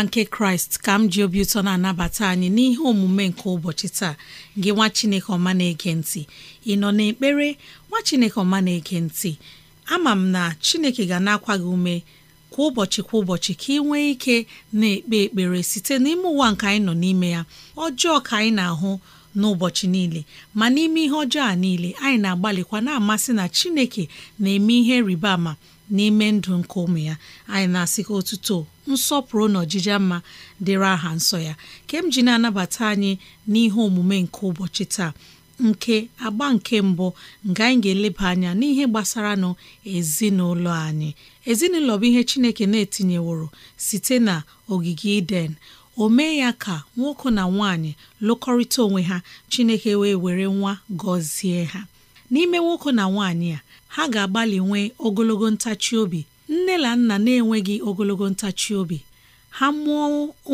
amara nke kraịst ka m ji obi ụtọ na-anabata anyị n'ihe omume nke ụbọchị taa gị nwa chineke ọma na-ege ntị ị nọ n'ekpere nwa chineke ọma na-ege ntị ama m na chineke ga na-akwa gị ume kwa ụbọchị kwa ụbọchị ka ị nwee ike na-ekpe ekpere site n'ime ụwa nke anyị nọ n'ime ya ọjọọ ka anyị na-ahụ n'ụbọchị niile ma n'ime ihe ọjọọ a niile anyị na-agbalịkwa na-amasị na chineke na-eme ihe rịba ama n'ime ndụ nke ụmụ ya anyị na-asị otuto nsọpụrụ na ọjija mma dịrị aha nsọ ya kem ji na-anabata anyị n'ihe omume nke ụbọchị taa nke agba nke mbụ nga anyị ga-eleba anya n'ihe gbasara nụ ezinụlọ anyị ezinụlọ bụ ihe Chineke na-etinyeworo site na ogige Iden omee ya ka nwoke na nwaanyị lụkọrịta onwe ha Chineke wee were nwa gọzie ha n'ime nwoke na nwaanyị a ha ga-agbalị nwee ogologo ntachi obi nne na nna na-enweghị ogologo ntachi obi ha mụọ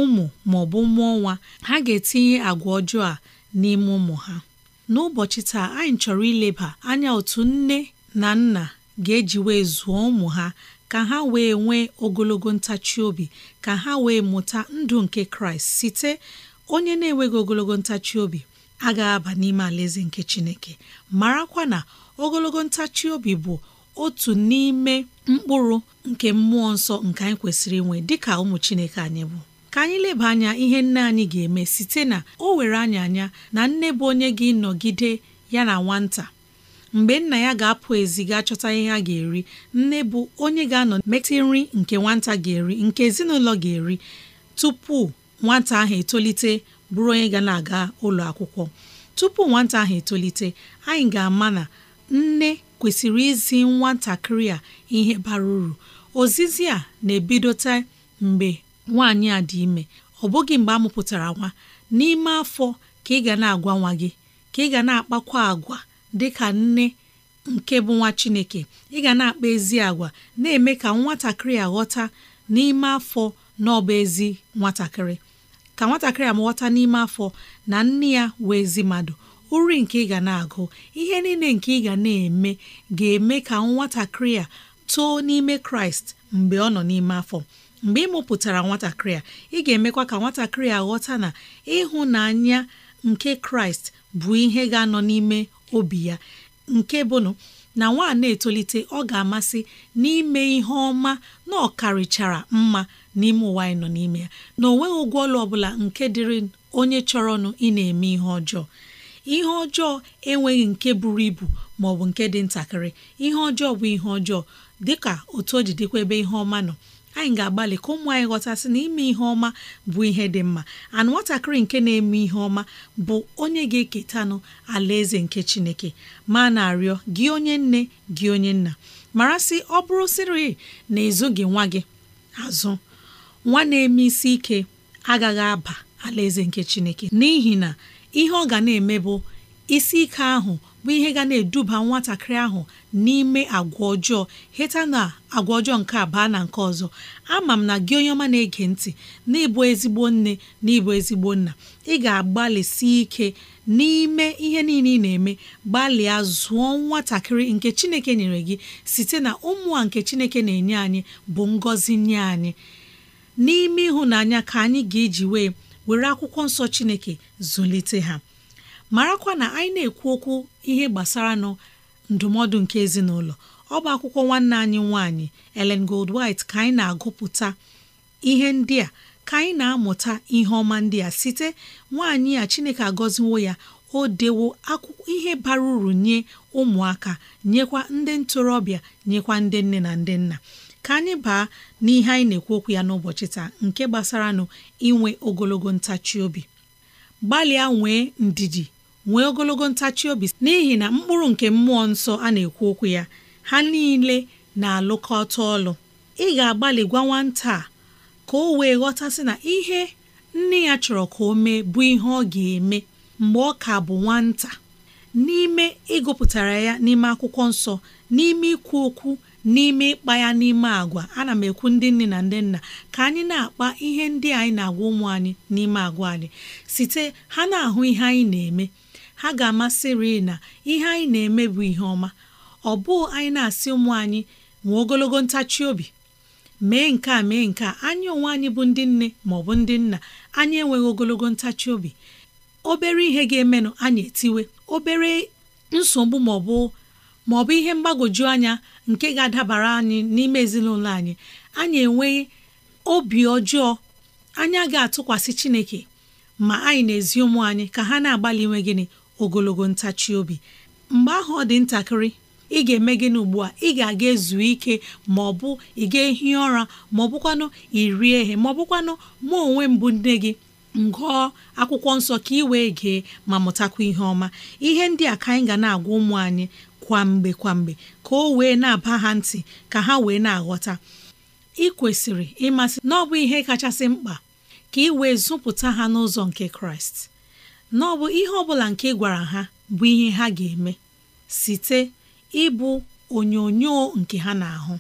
ụmụ ma ọ bụ mụọ nwa ha ga-etinye agwa ọjọọ a n'ime ụmụ ha n'ụbọchị taa anyị chọrọ ileba anya otu nne na nna ga-eji wee zụọ ụmụ ha ka ha wee nwee ogologo ntachi obi ka ha wee mụta ndụ nke Kraịst site onye na-enweghị ogologo ntachi obi agaghị aba n'ime alaeze nke Chineke marakwa na ogologo ntachi obi bụ otu n'ime mkpụrụ nke mmụọ nsọ nke anyị kwesịrị inwe dịka ụmụ Chineke anyị bụ ka anyị leba anya ihe nne anyị ga-eme site na o were anyị anya na nne bụ onye gị nọgide ya na nwata mgbe nna ya ga-apụ ezi ga chọta ihe a ga-eri nne bụ onye ga-anọ metụ nri nke nwata ga-eri nke ezinụlọ ga-eri tupu nwata ahụ etolite bụrụ onye ga na-aga ụlọ akwụkwọ tupu nwata ahụ etolite anyị ga-ama na nne kwesịrị izi nwatakịrị a ihe bara uru ozizi a na-ebidote mgbe nwaanyị a dị ime ọ bụghị mgbe a mụpụtara nwa n'ime afọ ka ị ga na-agwa nwa gị ka ị ga na-akpakwa agwa dị ka nne nke bụ nwa Chineke ị ga na-akpa ezi agwa na-eme ka nwatakịrị a ghọta n'ime afọ na ọ bụ ezi nwatakịrị ka nwatakịrị a ghọta n'ime afọ na nne ya wee ezi mmadụ uri nke ị ga na-agụ ihe niile nke ị ga na-eme ga-eme ka nwatakịrị a too n'ime kraịst mgbe ọ nọ n'ime afọ mgbe ị mụpụtara nwatakịrị a ị ga-emekwa ka nwatakịrị a ghọta na ịhụnanya nke kraịst bụ ihe ga-anọ n'ime obi ya nke bụnụ na nwa na-etolite ọ ga-amasị n'ime ihe ọma na ọkarịchara mma n'ime ụwa anyị nọ n'ime ya na o ụgwọ ọlụ ọbụla nke dịrị onye chọrọnụ ị na-eme ihe ọjọọ ihe ọjọọ enweghị nke buru ibu ma ọ bụ nke dị ntakịrị ihe ọjọọ bụ ihe ọjọọ dịka otu o ji dịkwa ebe ihe ọma nọ anyị ga-agbalị ka ụmụ anyị ghọtasị na ime ihe ọma bụ ihe dị mma and nwatakịrị nke na-eme ihe ọma bụ onye ga-eketanụ alaeze nke Chineke ma na-arịọ gị onye nne gị onye nna mara sị ọ bụrụ sịrị na ezughị nwa gị azụ nwa na-eme isi ike agaghị aba alaeze nke Chineke n'ihi na ihe ọ ga na-eme bụ isi ike ahụ bụ ihe ga na-eduba nwatakịrị ahụ n'ime agwa ọjọọ heta na agwa ọjọọ nke a baa na nke ọzọ ama m na gị onye ọma na-ege ntị na ịbụ ezigbo nne na ịbụ ezigbo nna ị ga-agbalịsi ike n'ime ihe niile ị na-eme gbalịa zụọ nwatakịrị nke Chineke nyere gị site na ụmụ a nke Chineke na-enye anyị bụ ngọzi nye anyị n'ime ịhụnanya ka anyị ga-eji wee were akwụkwọ nsọ chineke zụlite ha marakwa na anyị na-ekwu okwu ihe gbasara nọ ndụmọdụ nke ezinụlọ ọ bụ akwụkwọ nwanne anyị nwaanyị Ellen Goldwhite ka anyị na-agụpụta ihe ndị a ka anyị na-amụta ihe ọma ndị a site nwaanyị a Chineke agọziwo ya o dewo ihe bara uru nye ụmụaka nyekwa ndị ntorobịa nyekwa ndị nne na ndị nna ka anyị baa n'ihe anyị na-ekwu okwu ya n'ụbọchị taa nke gbasaranụ inwe ogologo ntachi obi gbalịa nwee ndidi nwee ogologo ntachi obi n'ihi na mkpụrụ nke mmụọ nsọ a na-ekwu okwu ya ha niile na-alụkọta ọlụ ị ga-agbalị gwa nwata a ka o wee ghọtasị na ihe nne ya chọrọ ka o mee bụ ihe ọ ga-eme mgbe ọ ka bụ nwata n'ime ịgụpụtara ya n'ime akwụkwọ nsọ n'ime ikwu okwu n'ime ịkpa ya n'ime agwa ana m ekwu ndị nne na ndị nna ka anyị na-akpa ihe ndị anyị na-agwa ụmụ anyị n'ime agwa anyị site ha na-ahụ ihe anyị na-eme ha ga-amasịrị na ihe anyị na-eme bụ ihe ọma ọ bụụ anyị na-asị ụmụ anyị nwee ogologo ntachi obi mee nke a mee nke a anyị onwe anyị bụ ndị nne maọbụ ndị nna anyị enweghị ogologo ntachi obi obere ihe ga-emenụ anyị etiwe obere nsogbu maọbụ. bụ ihe mgbagwoju anya nke ga-adabara anyị n'ime ezinụlọ anyị anyị enweghị obi ọjọọ anya ga atụkwasị Chineke ma anyị na-ezi ụmụ anyị ka ha na-agbalị inwe gịnị ogologo ntachi obi mgbe ahụ ọ dị ntakịrị ị ga-eme gịnị ugbu a ị ga-aga ezu ike ma ọ bụ ị ga-ehi ụra ma ọ bụkwanụ irie ehe ma ọ bụkwanụ mụ onwe mbụ nne gị ngụọ akwụkwọ nsọ ka ị wee gee ma mụtakwa ihe ọma ihe ndị a ka anyị ga na-agwa ụmụ anyị kwamgbe kwamgbe ka o wee na-aba ha ntị ka ha wee na-aghọta ịkwesịrị ịmasị na ọ bụ ihe kachasị mkpa ka ị wee zụpụta ha n'ụzọ nke kraịst na ọbụ ihe ọbụla nke ị gwara ha bụ ihe ha ga-eme site ịbụ onyonyo nke ha na-ahụ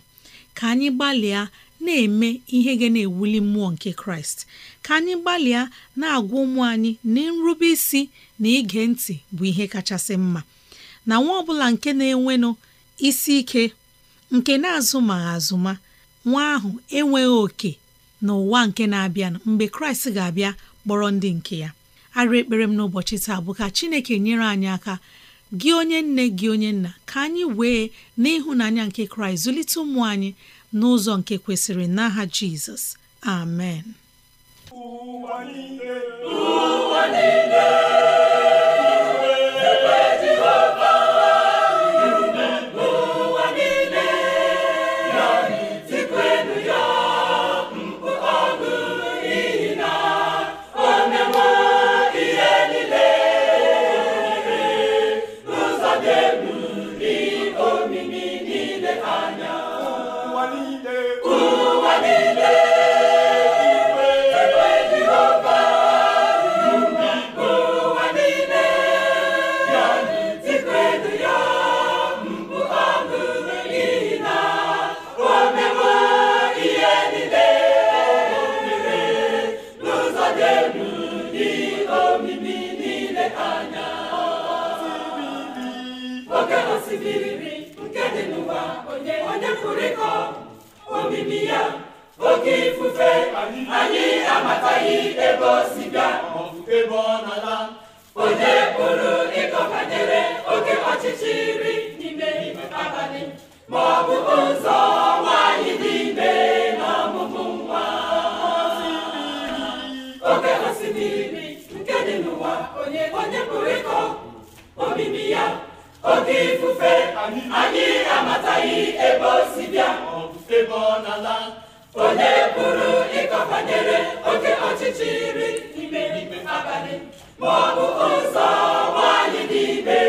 ka anyị gbalịa na-eme ihe ga na-ewuli mmụọ nke kraịst ka anyị gbalịa na-agwa ụmụ anyị na nrube isi na ige ntị bụ ihe kachasị mma na nwa ọbụla nke na-enwenụ isi ike nke na-azụ azụma nwa ahụ enweghị oke n'ụwa nke na-abịa mgbe kraịst ga-abịa kpọrọ ndị nke ya arịa ekpere m n'ụbọchị taa bụ ka chineke nyere anyị aka gị onye nne gị onye nna ka anyị wee n'ịhụnanya nke kraịst zụlite ụmụ anyị n'ụzọ nke kwesịrị n'aha jizọs amen na-efurikọ omimi ya oke ifufe anyị amataghị ebe o si bịa ebe ọ na-ala onye pụrụ ịkọ banyere oke ọchịchịrị n'ime abalị ma ọ bụ ụzọ nwaanyị dị ime na ọmụmụ nwa oke osimiri nke dị n'ụwa onye pụrụ ịkọ omimi ya oke ifufe anyị amataghị ebe o si bịa ebe ọ na-ala onye pụrụ ịkọbanyere oke ọchịchịrị n'ime abalị ma ọ bụ ụzọ nwaanyị n'ibe.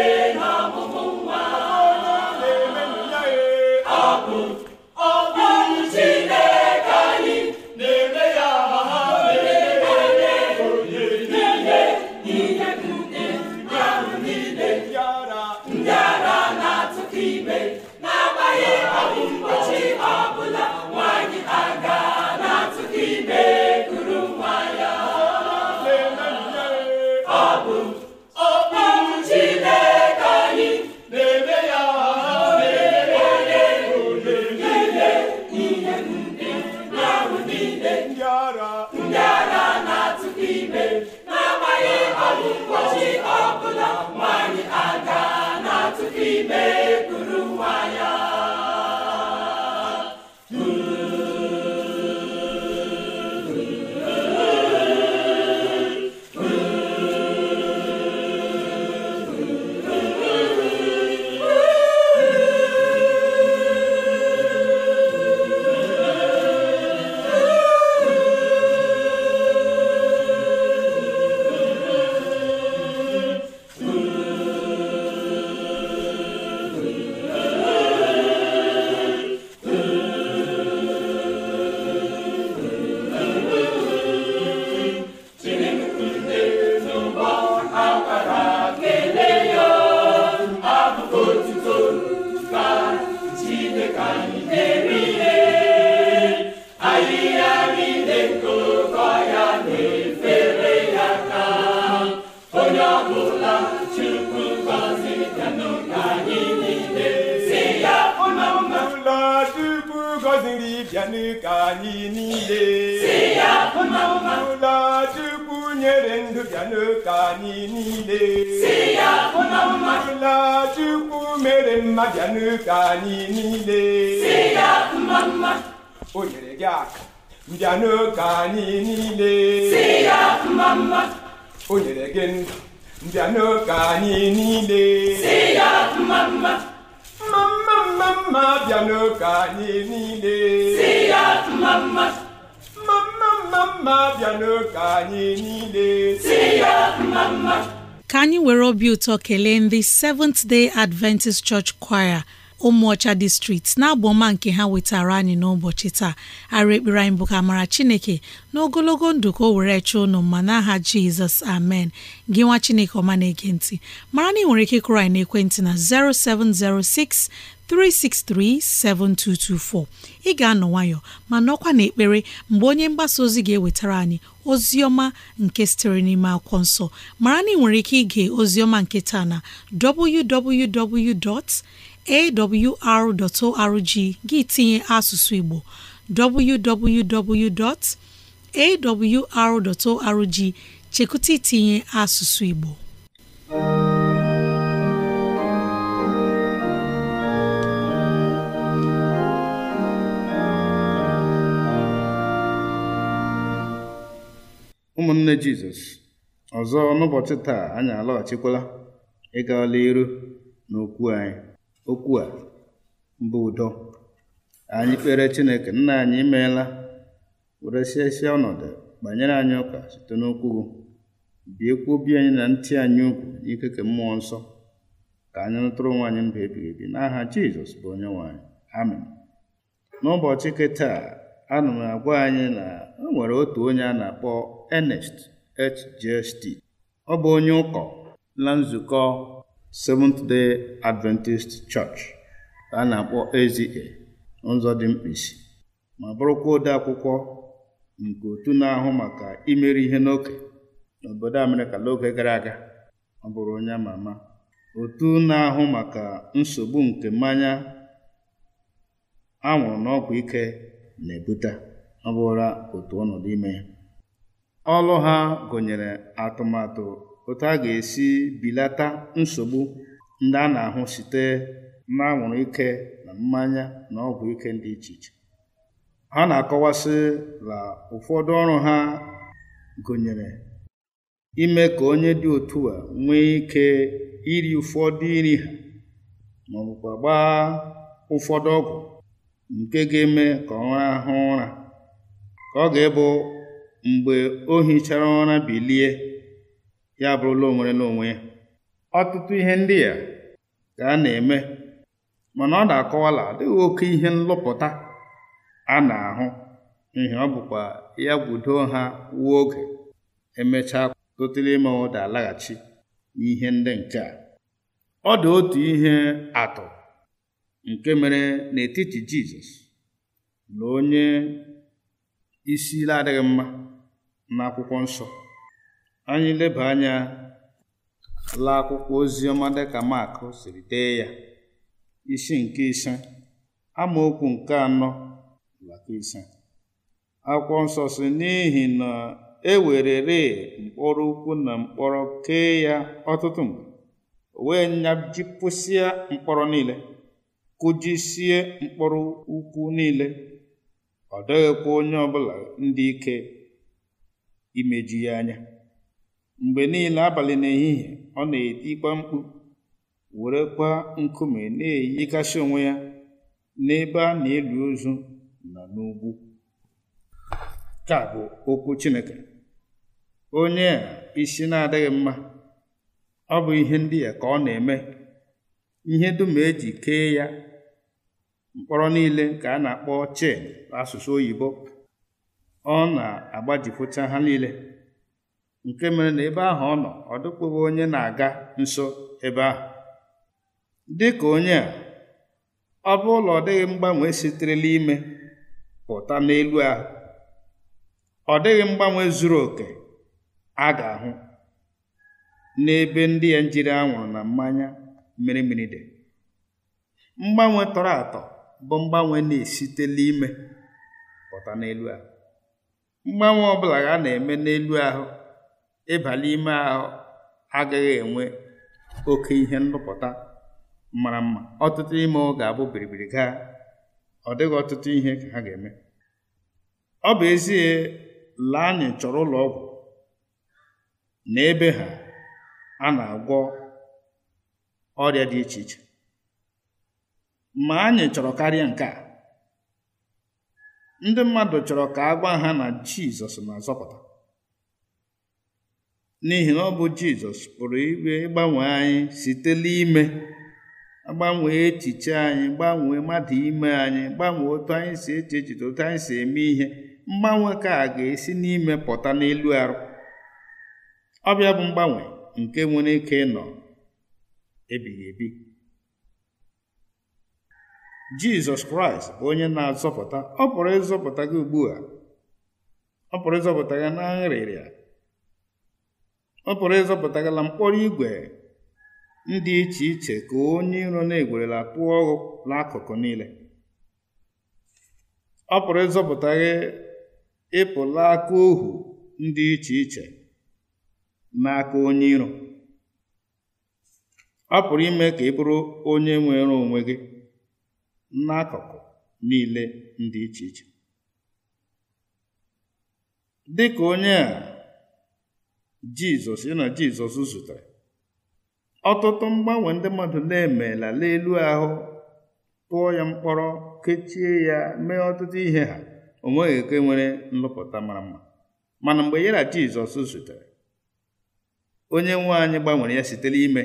mmadụ ka anyị niile ọbụla Chukwu mere mmadụ anyị niile o nyere gị aka? mbịanụ ka anyị niile o nyere gị ndụ mbịanụ ka anyị niile mma mma mma anyị niile mma bịanụ ka anyị niile si ya mma mma. ka anyị were obi ụtọ kelee ndị Seventh Day Adventist Church Choir ụmụọcha district na-abụ ọma nke ha wetara anyị n'ụbọchị taa arụ ekpere anyị bụ ka mara chineke n'ogologo ndụ ka o were chọọ unu mma n'aha jizọs amen gị nwa chineke ọma na-ege ntị mara na ị nwere ike kụrụ anyị ekwentị na 0706 363 7224 ị ga-anọ nwayọ ma nọkwa ekpere mgbe onye mgbasa ozi ga-ewetara anyị ozi ọma nke sitere n'ime akwụkwọ nsọ mara na ị nwere ike ige ozioma nke taa na www.awr.org gị tinye asụsụ Igbo www.awr.org chekụta itinye asụsụ Igbo ụmụnne jizọs ọzọ n'ụbọchị taa anyị alọghachikwala ịga iru na anyị okwu a mbụ udo anyị kpere chineke nna anyị imeela siesie ọnọdụ banyere anyị ụka site n'okwu biekwa obi anyị na ntị anyị ukwu n'ike ke mmụọ nsọ ka anyị rụtụrụ nwaanyị anyị mba ebighị ebi n'aha jizọs bụ onye nwaanyị amen n'ụbọchị nke taa ana m agwa anyị na o nwere otu onye a na-akpọ Ernest HJST. Ọ bụ onye ụkọ na nzukọ Seventh Day Adventist Church a na-akpọ dị mkpịsị, ma bụrụkwa ode akwụkwọ nke otu na-ahụ maka imeri ihe n'oke n'obodo Amerịka n'oge gara aga ọ bụrụ onye ama ama otu na-ahụ maka nsogbu nke mmanya anwụrụ n'ọgwụ ike na-ebute ọ bụrụla otu ọnọdụ ime ya Ọrụ ha gụnyere atụmatụ otu a ga-esi bilata nsogbu ndị a na-ahụ site n'anwụrụ ike na mmanya na ọgwụ ike dị iche iche. Ha na-akọwasị na ụfọdụ ọrụ ha gụnyere ime ka onye dị otu a nwee ike iri ụfọdụ iri ha ma ọ bụkwa gbaa ụfọdụ ọgwụ nke ga-eme ka ọ rahụ ụra ka ọ ga-ebu mgbe o hichara ụra bilie ya bụrụla onwere n'onwe ya ọtụtụ ihe ndị a ka a na-eme mana ọ na-akọwala adịghị oke ihe nlụpụta a na-ahụ ihe ọ bụkwa ya gwudo ha wuo oge emechaa tụtụrụ ime ụda alaghachi n'ihe ndị nke a ọ dị otu ihe atụ nke mere n'etiti Jizọs na onye isi ile adịghị mma n'akwụkwọ nsọ anyị leba anya la akwụkwọ ozi ọma dịka Mak siri dee ya isi nke ise amaokwu nke anọ ise akwụkwọ nsọ si n'ihi na e werere mkpọrọ ukwu na mkpọrọ kee ya ọtụtụ mgbe wee nyajipụsịa mkpọrọ niile kụjisie mkpọrọ ukwu niile ọ dịghịkwa onye ọbụla ndị ike imeju ya anya mgbe niile abalị n'ehihie ọ na-etikwa mkpu werekwa nkume na-eyigasị onwe ya n'ebe a na elu ozu na n'ugwu ka bụ okwu Chineke onye a isi na-adịghị mma ọ bụ ihe ndị ya ka ọ na-eme ihe dum eji kee ya mkpọrọ niile ka a na-akpọ chen asụsụ oyibo ọ na-agbajipụcha ha niile nke mere na ebe ahụ ọ nọ ọ dịkwughị onye na-aga nso ebe ahụ dị ka onye a ọ bụ ụlọ ọ dịghị mgbanwe siterela ime pụta n'elu ahụ ọ dịghị mgbanwe zuru oke a ga-ahụ n'ebe ndị ya njiri anwụrụ na mmanya mmiri mmiri dị mgbanwe tọrọ atọ bụ mgbanwe na-esitela ime pụta n'elu ahụ mgbanwe ọbụla ha na-eme n'elu ahụ ịbalị ime ahụ agaghị enwe oke ihe ndụpụta mara mma ọtụtụ ime ọ ga-abụ biribiri gaa ọ dịghị ọtụtụ ihe ka ha ga-eme ọ bụ ezie la anyị chọrọ ụlọ ọgwụ na ebe ha a na-agwọ ọrịa dị iche iche ma anyị chọrọ karịa nke a ndị mmadụ chọrọ ka a gwa ha na jizọs na-azọpụta n'ihi na ọ bụ jizọs pụrụ ibe ịgbanwe anyị site n'ime gbanwe echiche anyị gbanwee mmadụ ime anyị gbanwee otu anyị si eche echiche otu anyị si eme ihe mgbanwe ka a ga-esi n'ime pụta n'elu arụ ọbịa bụ mgbanwe nke nwere ike ịnọ ebighị ebi jizọs kraịst bụ onye na-azọpụta ọ pụrụ ịzọpụta gị ugbu a ọ pụrụ ịzọpụta gị na nrịrịa ọ pụrụ ịzọpụta gị na mkpọrọ igwe ndị iche iche ka onye iro na-egwerela tụọ ọghụ n'akụkụ niile ọ pụrụ ịzọpụta gị ịpụla aka ohu ndị iche iche n'aka onye iro ọ pụrụ ime ka ị bụrụ onye nwere onwe gị n'akụkụ niile ndị iche iche dị ka onye a Jizọs na Jizọs zutere ọtụtụ mgbanwe ndị mmadụ na-emela n'elu ahụ tụọ ya mkpọrọ kechie ya mee ọtụtụ ihe ha o nweghị eke nwere nlụpụta mara mma mana mgbe ya na Jizọs zutere onye nwe anyị gbanwere ya sitere ime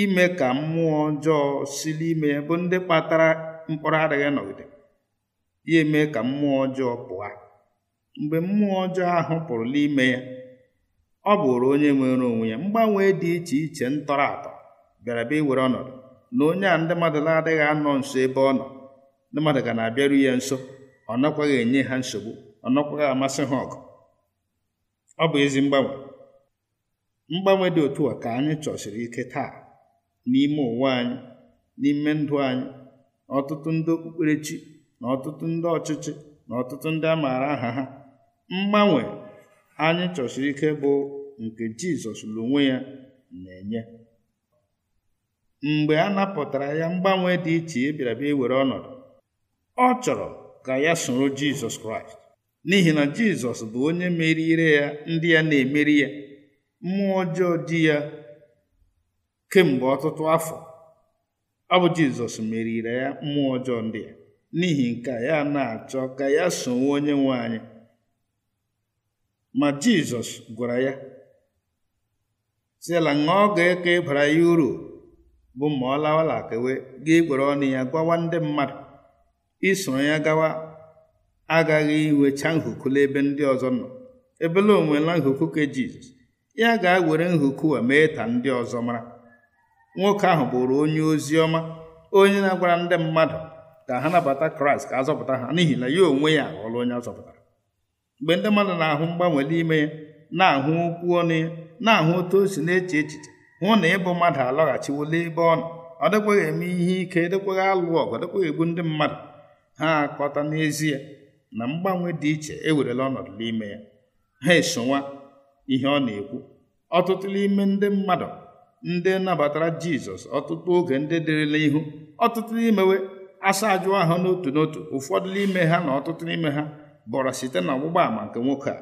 ime ka mmụọ ọjọọ si n'ime ya bụ ndị kpatara mkpọrọ adịghị nọgide ya eme ka mmụọ ọjọọ pụọ mgbe mmụọ ọjọọ ahụ pụrụ n'ime ya ọ bụrụ onye nwere onwe ya mgbanwe dị iche iche ntọrọ atọ bịara bịa iwere ọnọdụ na onye a ndị mmadụ na-adịghị anọ nso ebe ọ nọ ndị mmadụ ga na-abịaru ya nso ọ nakwaghị enye ha nsogbu ọ nakwaghị amasị ha ọgụ ọ bụ ezi mgbanwe mgbanwe dị otu a ka anyị chọsiri ike taa n'ime ụwa anyị n'ime ndụ anyị ọtụtụ ndị okpukperechi na ọtụtụ ndị ọchịchị na ọtụtụ ndị a maara aha ha mgbanwe anyị chọsiri ike bụ nke jizọs n'onwe ya na-enye mgbe a napụtara ya mgbanwe dị iche ya bịara ọnọdụ ọ chọrọ ka ya soro jizọs kraịst n'ihi na jizọs bụ onye merire ya ndị ya na-emeri ya mmụọ ọjọọ di ya kemgbe ọtụtụ afọ ọ bụ jizọs merire ya mmụọ ọjọọ ndị a n'ihi nke ya na-achọ ka ya sonwe onye nwe anyị ma jizọs gwara ya sila ọ ga-eke ịbara ya uru bụ ma ọ lawala kewe gị gwere ọnụ ya gwawa ndị mmadụ isoro ya gawa agaghị iwecha nhukula ebe ndị ọzọ nọ ebela onwela nhukwu ka jizọs ya ga-ewere nhuku a mee ka ndị ọzọ mara nwoke ahụ bụrụ onye ozi ọma onye na-agwara ndị mmadụ ka ha nabata kraịst ka azọpụta ha n'ihi na ya onwe ya aghọọla onye azọpụtara mgbe ndị mmadụ na-ahụ mgbanwe n'ime ya na-ahụ okwu ọnụ ya na-ahụ otu o si na-eche echiche hụ na ịbụ mmadụ alọghachiwola ebe ọ nọ ọ dịkwaghị eme ihe ike e dịkwaghị alụ ọgụ e dịkwaghị egbu ndị mmadụ ha akọta n'ezie na mgbanwe dị iche ewerela ọnọdụ n'ime ya ha esonwa ihe ọ na-ekwu ọtụtụ n'ime ndị mmadụ ndị nabatara jizọs ọtụtụ oge ndị dịrịla ihu ọtụtụ n'imewe asa ajụ ahụ n'otu n'otu ụfọdụ n'ime ha na ọtụtụ n'ime ha bọrọ site na ọgbụgba àmà nke nwoke a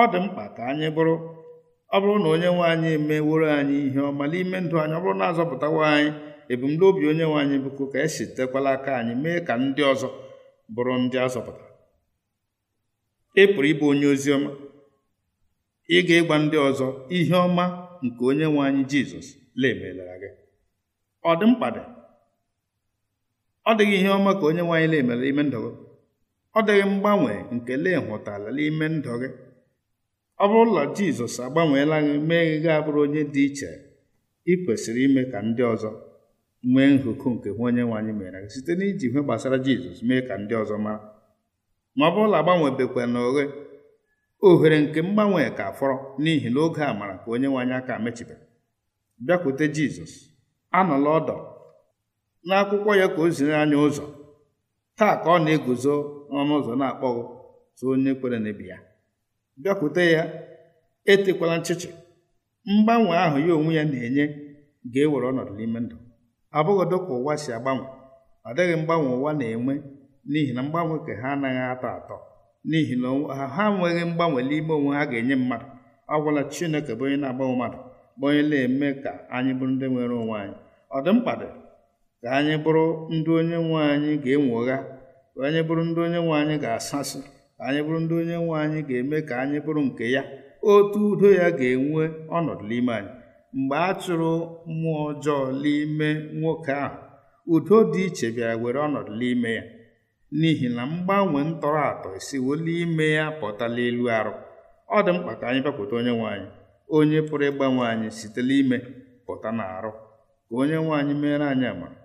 ọ dị mkpa ka anyị bụrụ ọ bụrụ na onye nwe anyị emeworo anyị ihe ọma n'ime ndụ anyị ọ bụrụ na azọpụtawa anyị ebumnobi onye nwe anyị bụkwa ka esi tekwala aka anyị mee ka ndị ọzọ bụrụ ndị azọpụta ị pụrụ ịbụ onye ozi ọma ị ga-ịgwa ndị ọzọ ihe ọma nke onye nwe anyị jizọs lemelara gị ọ dị mkpa dị ọ dịghị ihe ọma ka onye nwe anyị lemere ime ndụ gị ọ dịghị mgbanwe nke lee hụtara n'ime ndụ gị ọ bụrụ bụrụla jizọs agbanweela gị mee gị gaa abụrụ onye dị iche ị kwesịrị ime ka ndị ọzọ nwee nhụkụ nke hụ onye nwe anyị mere gị site n'iji ihe gbasara jizọs mee ka ndị ọzọ mara ma ọ bụrụla agbanwebekwa na oghe ohere nke mgbanwe ka fọrọ n'ihi na oge mara ka onye nwe anyị aka mechibeghị bịakwute jizọs anọla ọdọ n'akwụkwọ ya ka o ziri anyị ụzọ taa ka ọ na-eguzo n'ọnụ ụzọ na-akpọghị tụ onye kwere n'ebi ya bịakwute ya etekwala nchịchị mgbanwe ahụ ya onwe ya na-enye ga-ewere ọnọdụ n'ime ndụ abụghịdo ka ụwa si agbanwe ọ dịghị mgbanwe ụwa na-enwe n'ihi na mgbanwe ka ha anaghị atọ atọ n'ihi na ha nweghị mgbanwe n'ime onwe ha ga-enye mmadụ ọ gwụla chineke bụ onye na-agbanwe mmadụ bụ onye na-eme ka anyị bụrụ ndị nwere onwe anyị ọ dị mkpa dị ka anyị bụrụ ndị onye nwe anyị ga ụgha ka anyị bụrụ ndị onye nwe anyị ga-asasị ka anyị bụrụ ndị onye nwe anyị ga-eme ka anyị bụrụ nke ya otu udo ya ga-enwe ọnọdụ n'ime anyị mgbe a chụrụ mmụọ ọjọọ n'ime nwoke ahụ udo dị iche bịara were ọnọdụ n'ime ya n'ihi na mgbanwe ntọrọ atọ esiwola ime ya pụtala elu arụ ọ dị mkpa ka anyị bịakwute onye nwe anyị onye pụrụ ịgbanwe anyị site ime pụta na arụ ka onye nwaanyị mere meere anyị amara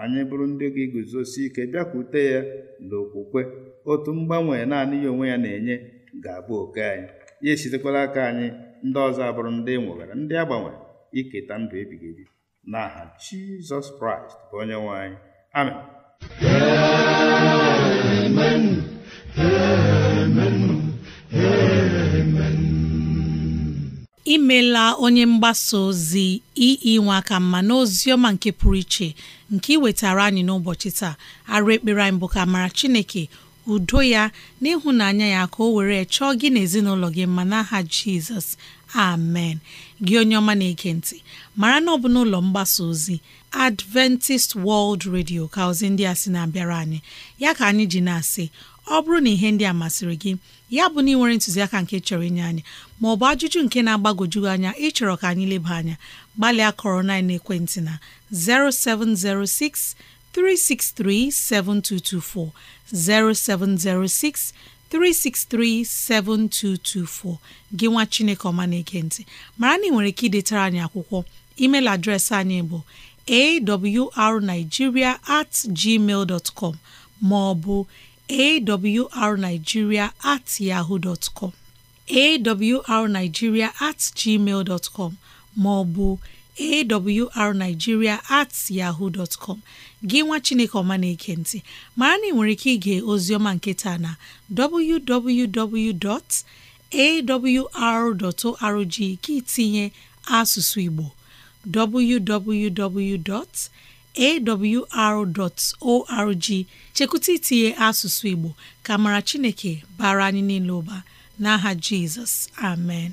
anyị bụrụ ndị ga-eguzosi ike bịakwute ya na okwukwe otu mgbanwe naanị ya onwe ya na-enye ga-abụ oke anyị ya esitekwala aka anyị ndị ọzọ abụrụ ndị e nwegara ndị agbanwe iketa ndụ ebighị ebi n'aha Jizọs Kraịst bụ onye nwe anyị imela imeela onye mgbasa ozi ii nwe aka mma n'ozi ọma nke pụrụ iche nke iwetara anyị n'ụbọchị taa arụ ekpere anyị bụ ka mara chineke udo ya na ịhụnanya ya ka o were chọọ gị na ezinụlọ gị mma n'aha jizọs amen gị onye ọma na-ege ntị mara na ọ bụ n'ụlọ mgbasa ozi Adventist World Radio ka ozi ndị a sị na-abịara anyị ya ka anyị ji na-asị ọ bụrụ na ihe ndị a masịrị gị ya bụ na ị nwere ntụziaka nke chọrọ inye anyị ma ọ bụ ajụjụ nke na agbagojugị anya ịchọrọ ka anyị leba anya gbalịa kọrọ na ekwentị na 0706 363 7224 0706 3637224 gị nwa Chineke ọma na-ege ntị mara na ị nwere ike idetara anyị akwụkwọ email adreesị anyị bụ arigiria at gmail dot com ma awrnigeria at yahoo dot com at gmail dot com ma awrnigeria at Gịnwa gị nwa chineke ọma na-eke ntị mara na ị nwere ike ige ozioma nke taa na www.awr.org ka itinye asụsụ igbo www.awr.org chekwụta itinye asụsụ igbo ka mara chineke bara anyị niile ụba n'aha jizọs amen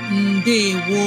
ndewo